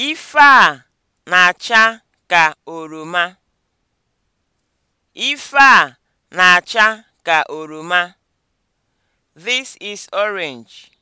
Ife a na-acha ka oroma. Ife a na-acha ka oroma. This is orange.